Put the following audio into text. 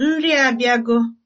Nri a abịago